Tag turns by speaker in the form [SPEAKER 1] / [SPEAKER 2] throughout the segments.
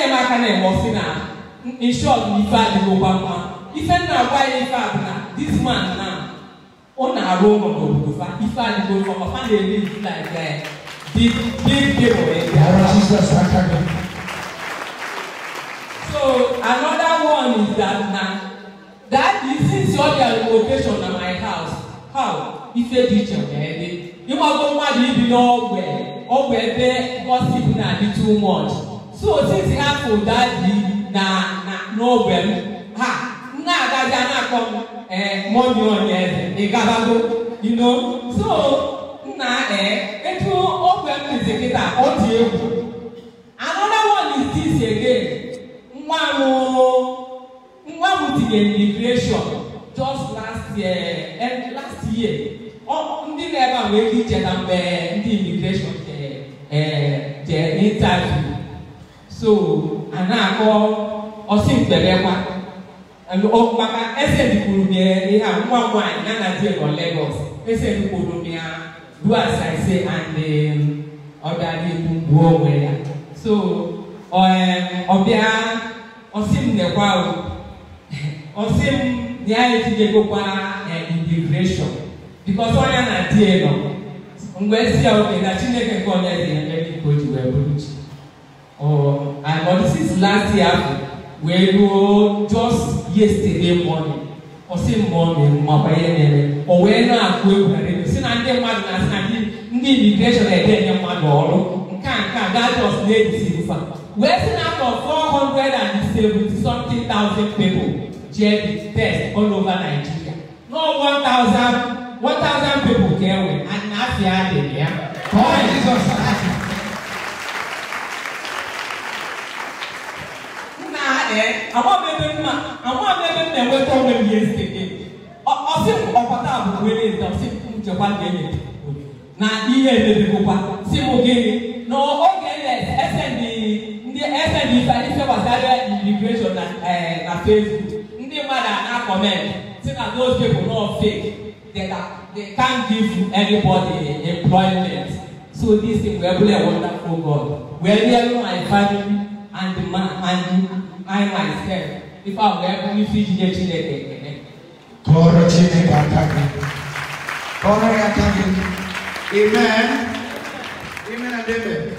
[SPEAKER 1] na-eme aka na-eme ọsị na in short na ife adịghị ụgwa mma ife nna agwa ya ife a na this man na ọ na-arụ ụlọ n'obodo fa ife adịghị ụgwọ ma fa na-eme ife na aga ya dị dị dị so another one is that na that is since all their location na my house how ife dị iche wee dị ịgbago mmadụ ibi n'ọgbe ọgbe ebe gossip na-adị too much so otiti hapụ daji na n'ogbe m ha na-agazi na-akpọ eh, m ee onye eze ịgabago ino so nna etu ogbe m dizi kịta ọ dị egwu another one is this again nwa m nwa tinyere migration ndị na-ebe a nwee icheta mgbe ndị imigreshọn jee interview so anaa kɔ ɔsi ntɛbɛ kwa ɔkpaka ɛsɛ dukuru miɛ eha mua mua nana di ɛnɔ lagos ɛsɛ dukuru miɛ do asaase ande ɔda di bubu ɔwɛ ya so ɔɛ ɔbia ɔsi ntɛkwa o ɔsi nyɛ ayɛ ti de ko kwa ɛ integration because ɔnya na di ɛnɔ ngwa esi a ɔkè na chineke nkɔ ɔnya di ɛnɛ ni kojú ɛbulu. Oh, and but this is last year wee ruo just yesterday morning ọ sị mmụọ na-emu ma banye n'ere o wee na-akụ egwu na redio si na ndị mmadụ na-asị na ndị ndị imigreshọn na-edenye mmadụ ọrụ nke a nke a gajọs na-etiti nfa wee si na afọ 470 something thousand people jee the test all over Nigeria no 1000 1000 people ka e nwere na afịa adịghị ya ka ọ jizọs àwọn abẹ́bẹ́ mu a àwọn abẹ́bẹ́ mu na ẹ̀wẹ́ tọ́ ọmọ ẹ̀mí ẹ̀sì kéde ọ̀sẹ̀ ọ̀pọ̀tà àbùkù ẹ̀lẹ́ ẹ̀sì ọ̀sẹ̀ njẹ̀kwa gẹ̀ẹ́yẹ na ihe ẹ̀bẹ̀bẹ̀ kọkwa sí mo gẹ̀ẹ́yẹ na oge ẹ̀ ẹsẹ̀ ní ndị ẹsẹ̀ ní ife ife gbasara immigration na ẹ̀ na Facebook ndị mmadụ a na-akọment si na those people no fake they they can't give anybody employment so this thing wee
[SPEAKER 2] bụrụ a wonderful
[SPEAKER 1] God wee rịa my family and the man and you. I myself ife ahụ ga-ebu ife ijije Chineke ekele. Kọọrọ Chineke aka gị. Kọọrọ ya aka gị.
[SPEAKER 2] Amen. Amen and amen.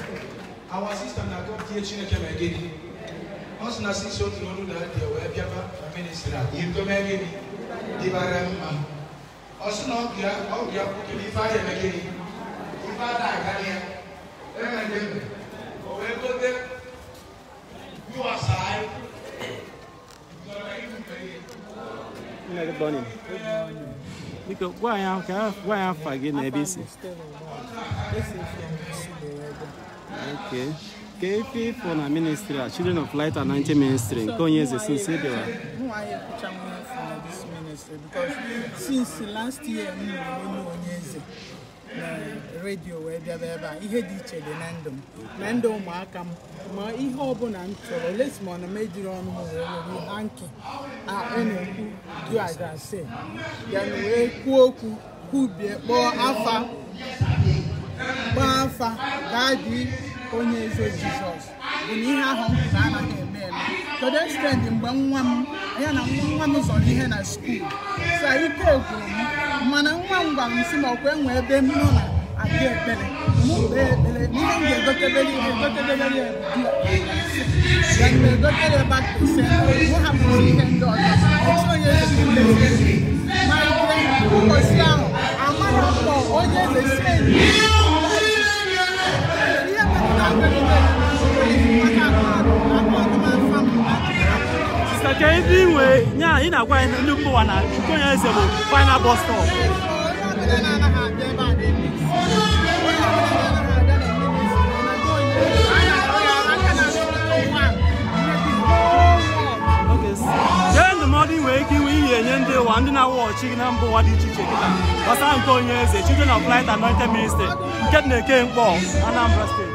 [SPEAKER 2] Our sister na-akọ tie Chineke ma gị. Ọ sị na sisi otu n'ọnụ na adị wee bịaba na ministri a. Ihe ntome gịnị dịbara mma. Ọ sị na ọ bụ ya kwukere ife ahụ eme gịnị. Ife ada aga ya. Amen and amen. O wee gote. Yuwasa
[SPEAKER 1] Good morning. Good morning. Because why am why am fagi na ABC? Okay. KP for na ministry, uh, Children of Light and Anti Ministry. Konye zesin se dewa. Who are you since last year, na redio wee bịaba ebe a ihe dị iche dị na ndụ m na ndụ ụmụaka m ma ihe ọbụla m chọrọ lesi na lesmon mejiri ọnụ wee hanki na-ekwu duagase ya na wee kwuo okwu kwubie kpọọ afa
[SPEAKER 2] kpọọ afa gaa dị onye eze jizọs bụ na ihe ahụ na anaghị eme eme kedu ekstendị mgbe nwa m ya na nwa nwa m zọrọ ihe na skuul sa ike gwụrụ m m gwara m si na enwe ebe m nọ na adị ekpere mụ ekpere n'ihe m ga-egotebere ihe
[SPEAKER 1] egotebere ya ebudu
[SPEAKER 2] ya mgbe egotere ebe ise mụ hapụrụ ihe ndị ọzọ onye ezi ma ike mposi ahụ amara mkpọ onye eze si enyi ihe
[SPEAKER 1] metụta Sister Kevin, we, yeah, in a way, look for one. final bus stop. ndị na-awụ ọchị na mba ụwa dị iche iche kịta gbasara nke onye eze children of light anointed ministry nke na-eke mkpọ Anambra steeti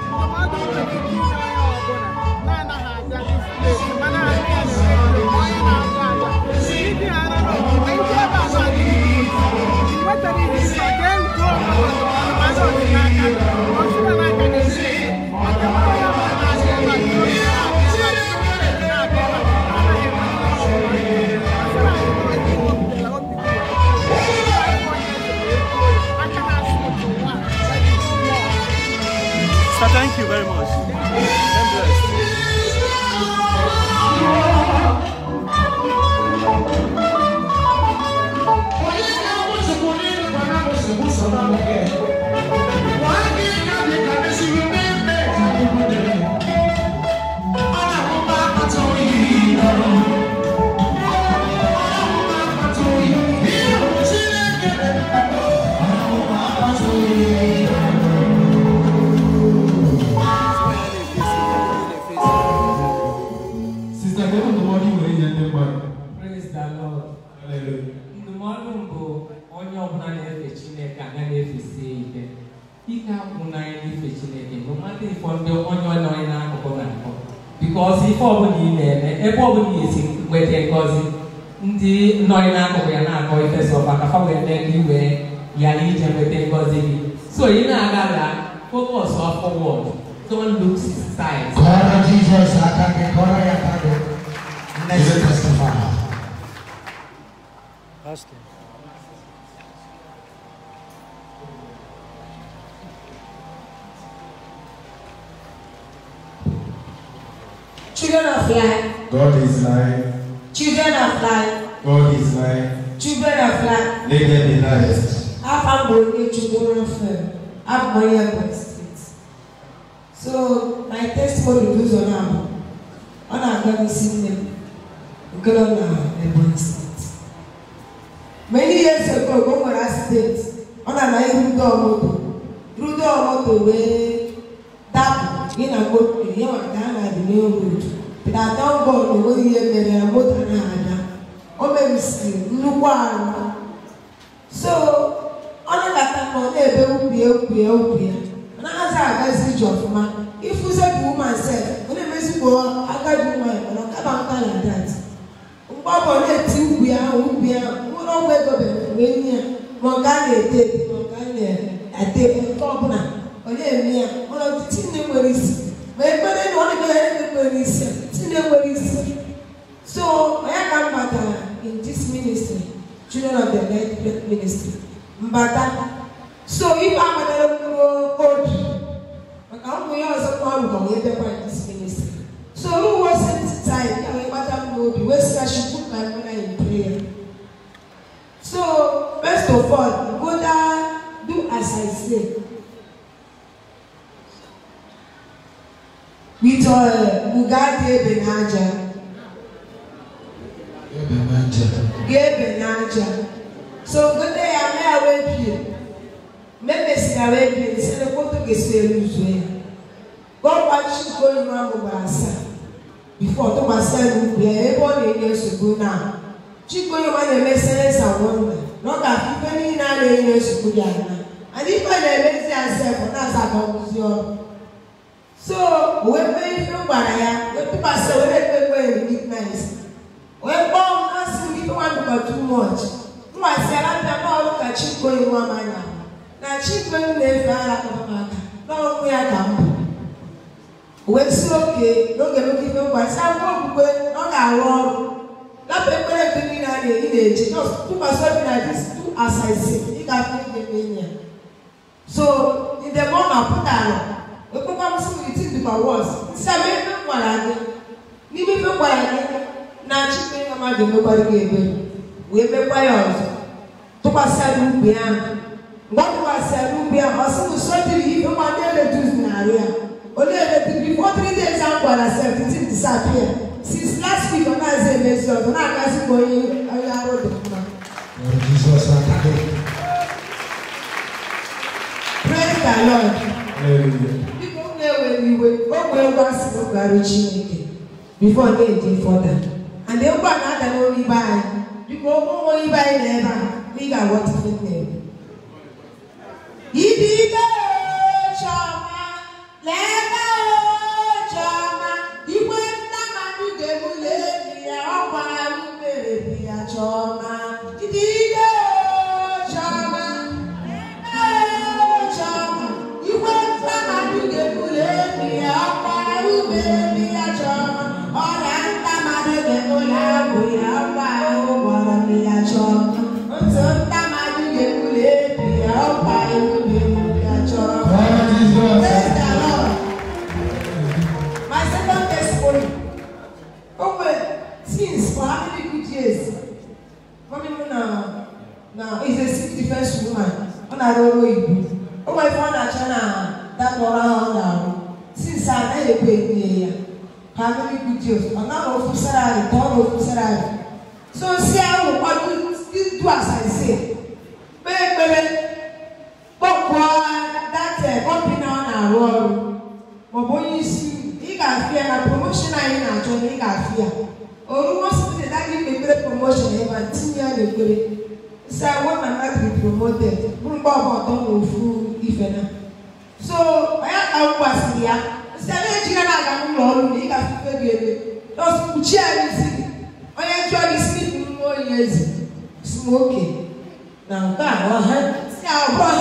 [SPEAKER 1] Ndụmọdụ mbụ onye ọbụla na-efe Chineke aga na-efesie ike ike akwụ n'anya n'ife Chineke bụ mmadụ ịfọ ndị onye ọla onye n'akụkụ na-akọ bikọzi ife ọbụla ị na-eme ebe ọbụla esi nweta ngọzi ndị nọ n'akụkụ ya na-akọ ife sọ maka fa wee mee ka iwee ghara ije nweta ngọzi gị so ị na-agala focus forward don't look sides. Kọrọ Jizọs
[SPEAKER 2] aka gị kọrọ ya aka gị. Austin.
[SPEAKER 1] Children of life. God is life. Children of life.
[SPEAKER 2] God is life. Children of life. Let them be light. Afa Mbonye Chukwuna Fem, Abumaye Boy Street. So my testimony goes on now. Ọ na-aga n'isi nne m, nke nọ na Ebonyi Steeti. Europe o nwere asidenti ọ na-ama irudo moto rudo moto wee dapụ gị na moto ihe maka a na-adị n'elu otu dada bọọlụ enweghị ihe mere ya moto na-ada o merisiri nnukwu ahụ so ọ na-abata na ọ na-ebe ukwu ya ukwu ya ukwu ya na-aza agazi ije ọfụma ifuze bụ ụmụ ase ọ na-emezikwa agadi ụmụ ya mana ọ kaba nka na dat mgbe ọ bụ na-eti ukwu ya ukwu ya wee gobe wee nye ya ma ọ gaa na-ete ete ma ọ gaa na-ete nke ọbụla ọ na-eme ya mana ọtụtụ nwere isi ma ekpere na ọ ebe nwere isi nne nwere isi so onye ka m batara in this ministry children of the light ministry mbata so ife abatara mkpụrụ obi maka ụmụ ya ọzọ kwa rụkwa wee bịakwa in this ministry soil, Bugatti Benaja. Gabe Benaja. So good day, I'm here with you. Maybe sika wepi nisele koto gesere uzwe. God watch you go in one mubasa. Before to myself will e be able to years ago now. Chico you want to make sense and wonder. Not that people need not years ago now. And if I make sense, I'm not going to so wee mee ihe gwara ya wetụkwasị were ekpekpe recognize wee kpọọ m na-asị m ife nwa dịkwa too much mgbasiara mpịa bọọlụ ka chikoyi nwa m anya na chikoyi na-efe ara kpamaka n'ọnwụ ya ka mbụ wee si oke n'oge nwoke ife mgbasi akwụkwọ okpukpe na ọ ga-arụ ọrụ lapụ ekpere ekpe niile a na-eji na-eji tụkwasị obi na dis tu asaisi ị ga-afụ ihe mee ya so ndị mmụọ na-apụta ala for once sɛ mebe nwara gị n'ime mekwara gị na chikpe na mmadụ mekwara gị ebe wee mekwa ya ọzọ tụkwasịrị ubi ahụ mgbe ọ tụkwasịrị ubi ahụ ọ sị m sọdịrị ihe mmadụ eletus narị ya onye eletus before three days ahụ gwara seventeen disappear since last week ọ na-aza emezi ọzọ na-agazi ka onye onye arụ dị mma Praise the Lord wee ngwa asị n'ụgbarụ chineke bifo na fọda and ngwa na-ada n'olu ibe anyị biko ụmụ ibe anyị na ebe a ị ga-aghọta ihe na-eme ibe ibe na-arụ ọrụ maọbụ onye isi ị ga-afịa na promoshon anyị na-achọ na ị ga-afịa orumositeta gị mepere promoshon ebe tinye ya n'ekpere si agwa ma natri promoted bụrụ mgbe ọgba ọtọ na ofu ife na so onye ka m gwasịrị ya si ebe ejiga na-aga n'ụlọ ọrụ na ị ga-afụfe gị ebe nọọsụ kpuchie ya n'isi gị onye jụọ gị si nwa oyi ezi smoke na nke a ọha si abụọ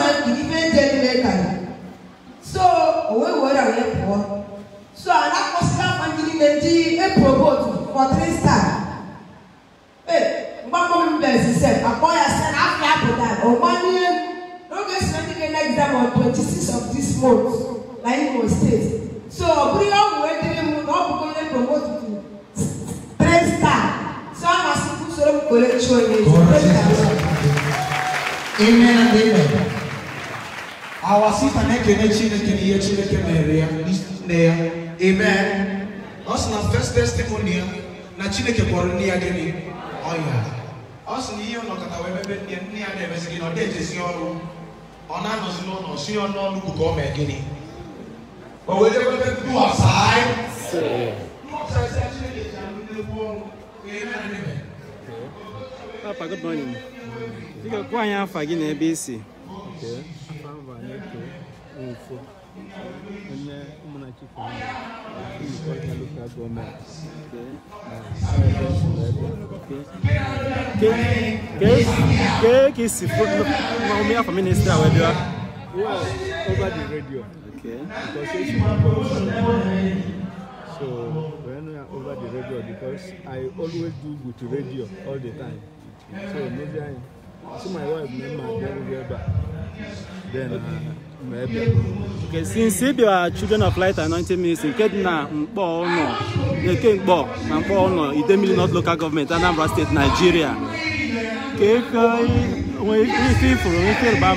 [SPEAKER 1] amen and amen Our sister, na-ekene
[SPEAKER 2] chineke na ihe chineke mere ya
[SPEAKER 1] nne ya
[SPEAKER 2] amen ọ sị na first
[SPEAKER 1] testimony ya na chineke kpọrọ nne ya gịnị ọya ọ sị na ihe ụnọkọta wee mebe nne nne ya na-emezi gị na ọ na-ejezi ọrụ ọ na-anọzi n'ụlọ si ọnụ ọnụ ugwu ka ọ mee gịnị o wee debe ebe duhasai mmụta esi chineke ji anụ n'egwu ọnwụ ka eme na ebe Papa, good morning. Dịka kwa anyị afa gị na ebe isi. Okay. mbụ anyị eto nwụfọ onye ụmụnna Chukwu Nkwọrịta Lokal Gọọmenti Kee ka isi ụmụ afọ minista wee bịa? Well, over the radio. Okay. Because so when we are over the radio because I always do with radio all the time. so maybe anyị si my wife na mma a then ma
[SPEAKER 2] okay
[SPEAKER 1] since our children of light anointing ministry nke dị na mkpọ ụlọ eke mkpọ na mkpọ ụlọ idemili north local government anambra state nigeria ka eke ifuru ama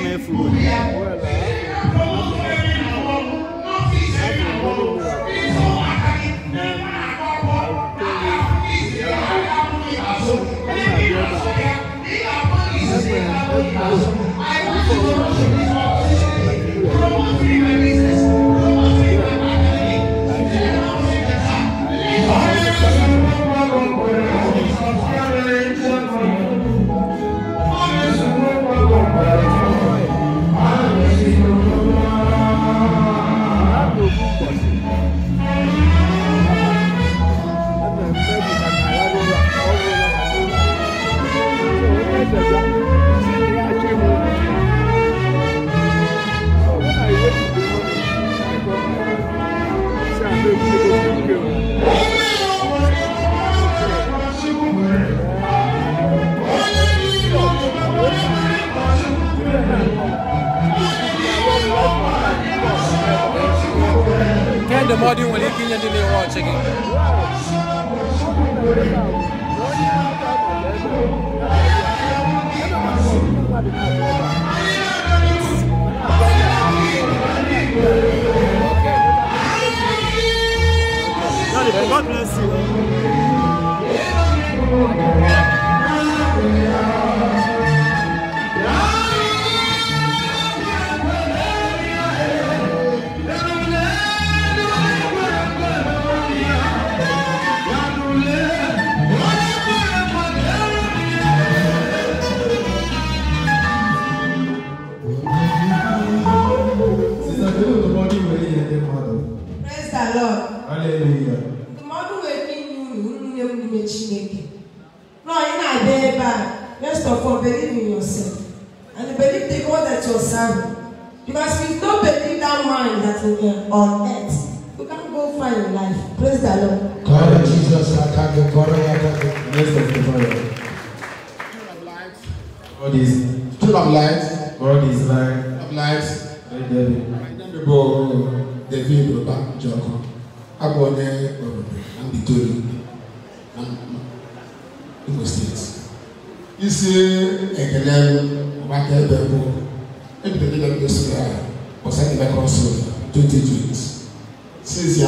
[SPEAKER 2] believe in yourself. And believe the God that you're serving. Because if you don't believe that man that we are on earth, you can't go far in life. Praise the Lord. God
[SPEAKER 1] Jesus, I thank you. God, I thank you. Yes, of light. God is full of light. God is light. Full of light. My name is David Robert Joko. I'm going to be doing isi ekele maka ebe bụ ebidogide ndị sụrụ ya ọsa ndị mekọrọ sụrụ
[SPEAKER 2] 2020 since ya